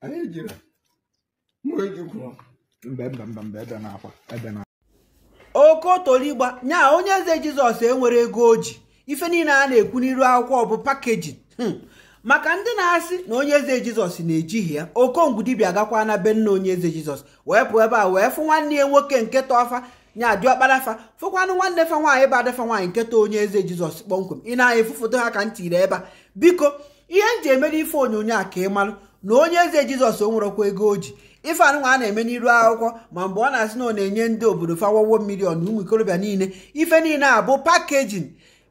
anyị jiri nwejikwuru mgbe mbe mbe mbe ebe na-akwa ebe na okotoligba nya onye eze jizọs enwere ego o ji ife niile a na-ekwu n'iru akwụkwọ bụ pakeji hmm. maka ndị na-asị na onye eze jizọs na-ejighị ya okongwu dibia gakwa na be nna onye eze jizọs wee pụọ ebe a wee fụ nwanne ya nwoke nke tọfa nya diọkparafa fụkwanụ nwanne fa nwaanyị bụ adafa nwaanyị nketa onye eze jizọs kpọmkwem ị na-efu foto ha ka ntị ire ebe a biko ihe m ji emere ife onyonyo a ka ị malụ na onye eze jizọs o nwerekwa ego o ji ife anụnwa a na-eme n'iru akwụkwọ ma mgbe ọ na-asị na ọ na-enye ndị obodo fawawo milion ụmụ ikorobịa niile ife niile a bụ pakejin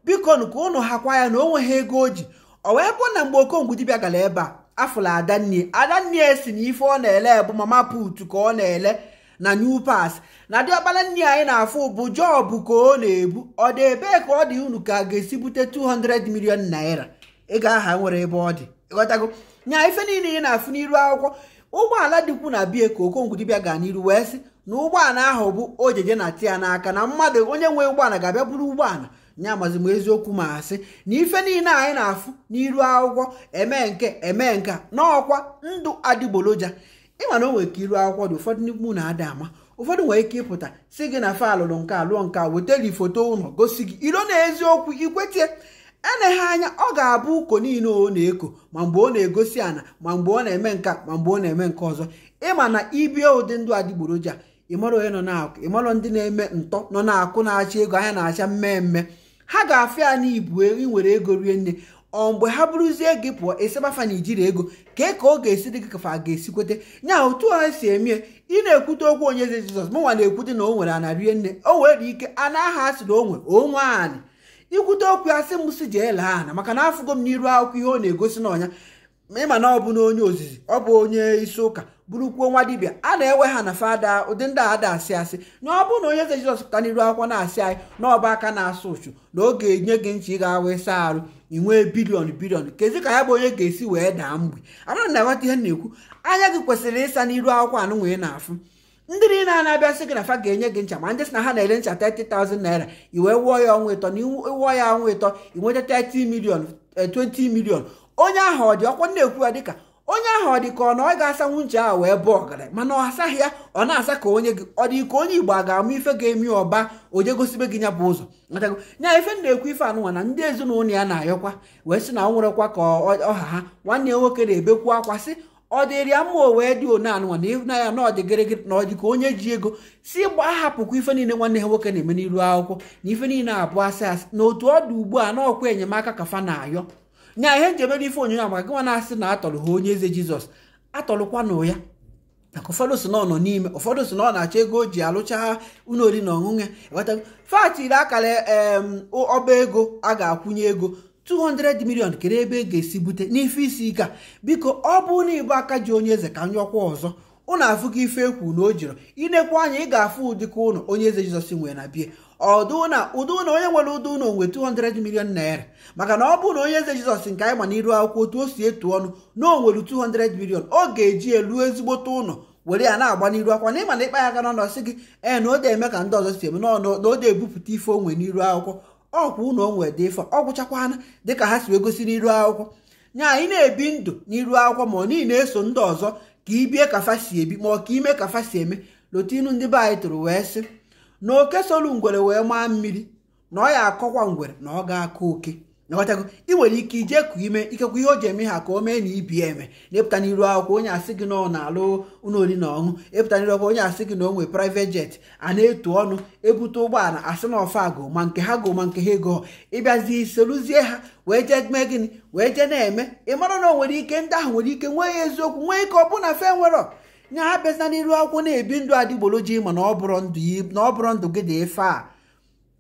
biko ka ụnụ hakwa ya na onwe ha ego o ji o wee bụ na mgbe okongwu dibịa gara ebe a afụla adanie adannie si na ife ọ na-ele bụ mama put ka ọ na-ele na new pass na diọkpara nne anyị na-afụ bụ jọbụ ka ọ na-ebu ọ dị ebee ka ọ dị unu ka a ga-esi bute 200 million naira ego aha nwere ebe ọ dị ịghọtago nya ife niile ị na-afụ n'iru akwụkwọ ụgbọala dịkwu na bie ka okongwudibia gaa n'iru wee sị na ụgbọala ahụ bụ ojeje na tia n'aka na mmadụ onye nwe ụgbọala ga-abịa buru ụgbọala nya mazi m eziokwu ma asị na ife niile anyị na-afụ n'iru akwụkwọ eme nke eme nke n'ọkwa ndụ adịgboloja ịma na o nwere ka iru akwụkwọ dị ụfọdụ n'ikwu na-ada ama ụfọdụ nwere ike ịpụta si gị na fa alụrụ nke alụọ nke wetara ifoto ụlọ gosi gị ilo na eziokwu ikwetie eleghị anya ọ ga-abụ ụkọ niile ọ na-eko ma mgbe ọ na-egosi ana ma mgbe ọ na-eme nka ma mgbe ọ na-eme nke ọzọ ịma na ibie ụdị ndụ adịgboroja ịmara onye nọ na-akụ ịmara ndị na-eme ntọ nọ na-akụ na-acha ego anya na-acha mmemme ha ga-afịa ya n'ibu e, inwere ego rie nne ọ mgbe ha bụrụzie gị pụọ esebafa na ijiri ego kee ka ọ ga-esi dị gị kafa a ga-esikwete nya otu ha si emie ị na-ekwute okwu onye eze Jizọs mụnwa na-ekwute na o nwere ana rie nne o nwere ike ana aha a sịrị onwe onwe anị ikwute okwu asị sị m si jee ana maka na afụgo m n'iru akwụkwọ ihe ọ na-egosi n'ọnya ịma na ọ bụ na onye ozizi ọ bụ onye isi ụka bụrụkwuo nwa dibịa a na-ewe ha na fada ụdị ndị a da asị asị na ọ bụ na onye eze jizọs pụta n'iru akwụkwọ na-asị anyị na ọba aka na-asụ ụchụ na ọ ga-enye gị ncha ị ga-awa ịsa arụ ị nwee bilion bilion kezi ka ya bụ onye ga-esi wee daa mgbe anaghị na-aghọta ihe na-ekwu anya gị kwesịrị ịsa n'iru akwụkwọ anụnwa ị na-afụ ndị niile a na-abịasị gị na fa ga-enye gị ncha ma ndị na ha na-ele ncha 30,000 naira wee wụọ ya ọnwa ịtọ na ịwụọ ya ọnwa ịtọ inweta 30 million 20 eh, million onye ahụ ọ dị ọkwa na-ekwu ya dịka onye ahụ ọ dị ka ọ na ọ ga-asanwu ncha ahụ wee bụ ọgaranya mana ọ asaghị ya ọ na-asa ka onye gị ọ dị ka onye igbo a ga-amụ ife ga-emi ọba onye gosibe gị ya bụ ụzọ nya ife na-ekwu ife anụnwa na ndị ezinụlọ ya na-ayọkwa wee sị na ọ nwụrụkwa ka ọha ha nwanne ya nwoke na-ebekwu akwa sị ọ dịrịa mma o dị one anụnwa na ịhụnanya na ọ dị na ka onye ji ego si gbaa hapụkwa ife niile nwanne ha nwoke na-eme n'iru akwụkwọ na ife niile abụọ asị asị na otu ọ dị ugbu a na ọkwa enyemaka ka na-ayọ nya ihe njem ebe ife onyonyo a maka gịnwa na-asị na atọrọ ha onye eze jizọs atọrọkwanụ ya maka ụfọdụ si na ọ nọ n'ime ụfọdụ si na ọ na-achọ ego o ji alụcha ụlọ na ọṅụṅụ ya fatiri akara ọba ego a ga-akwụnye ego 200 million kere ebe e ga-esi bute n'ife isi ike a biko ọ bụrụ na ịbụ aka ji onye eze ka m nyọkwa ọzọ ụnụ afụgo ife ekwu na o jiri inekwu anya ị ga-afụ ụdịka ụnụ onye eze jizọs nwere na bie ọdụ na ụdị ụnụ onye nwere ụdị ụnụ nwe 200 million naira maka na ọ bụrụ na onye eze jizọs nke anyị ma n'iru akwụkwọ otu o si etu ọnụ na o nwere 200 million ọ ga-eji elu ezigbote ụnọ were ya na-agba n'iru akwụkwọ na ịma na ịkpa ya aka n'ọnọ sị gị ee na eme ka ndị ọzọ si eme n'ọnụ na o de ebupụta ife onwe n'iru akwụkwọ ọkwa unu onwe dị ọ ọgwụchakwana dịka ha si egosi n'iru akwụkwọ nya anyị na-ebi ndụ n'iru akwụkwọ ma ọ niile na-eso ndị ọzọ ka ibie ka si ebi ma ọ ka ime ka si eme lotinu ndị be anyị tụrụ wee sị na oke solu ngwere wee maa mmiri na ọ ya akọkwa ngwere na ọ ga-akọ oke ịghọtago ị nwere ike ije kụ ime ikekwa ihe o ji eme ha ka o mee na ibi eme na-epụta n'iru akwụkwọ onye asị gị na ọ na-alụ ụlọ oriri na ọṅụ epụta n'iru akwụkwọ onye asị gị na o nwere jet a na-etu ọnụ ebute ụgbọala asị na ọfa agụ ma nke ha gụ ma nke ha ego ịbịazi soluzie ha wee jee mee gịnị wee jee na-eme ị mara na o nwere ike ndị ahụ nwere ike nwee ya eziokwu nwee ike ọ bụ na fe nwere nya ha bịazina n'iru akwụkwọ na-ebi ndụ adịgboloji ma na ọ bụrụ ndụ gị dị efe a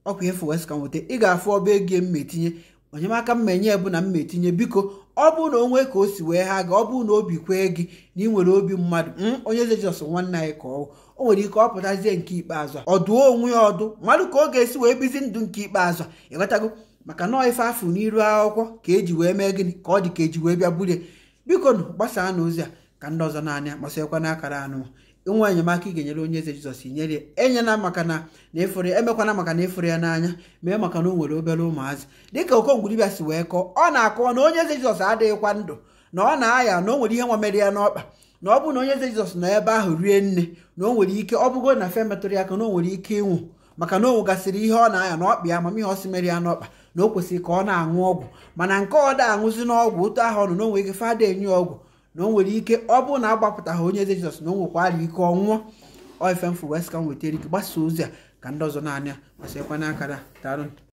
ọkwa efe wes ka nweta ị ga-afụ ọba ego m ma etinye onyemaka m menye bụ na m metinye biko ọ bụrụ na onwe ka o si wee ha ga ọ bụrụ na obi kwee gị na ị nwere obi mmadụ onye eze jizọs nwanne anyị ka ọ o nwere ike ọ pụtazie nke ikpeazụ ọ dụọ onwe ya ọdụ mmadụ ka ọ ga-esi wee bizi ndụ nke ikpeazụ ịghọtago maka nọọ ife afụ n'iru akwụkwọ ka eji wee mee gịnị ka ọ dị ka eji wee bịa bulie biko nụ gbasaa na ozi a ka ndị ọzọ naanị masịkwa akara anụ nwa enyemaka ị ga-enyere onye eze jizọs inyere ya enyela maka na na efere emekwana maka na efere ya n'anya mee maka na o nwere obere ụmụazị dịka okongwuribịa si wee kọọ ọ na-akọwa na onye eze jizọs adịghịkwa ndụ na ọ na-aya na o nwere ihe nwa ya n'ọkpa na ọ bụrụ na onye eze jizọs nọ ebe ahụ rie nne na o nwere ike ọ bụgo na fe metụrụ ya aka na o nwere ike ịnwụ maka na o nwegasịrị ihe ọ na-aya n'ọkpa ya amamihe ọ si mere ya n'ọkpa na o kwesịrị ka ọ na-aṅụ ọgwụ mana nke ọ da aṅụzi n'ọgwụ otu ahụ ọ na o nwere ike fada enye ọgwụ na o nwere ike ọ bụrụ na agbapụtaghị onye eze jizọs na o nwekwara ike ọnwụọ nwụọ mfu west ka m nwetara ike gbasa ozi a ka ndị ọzọ na-anya gbasakwa n'aka na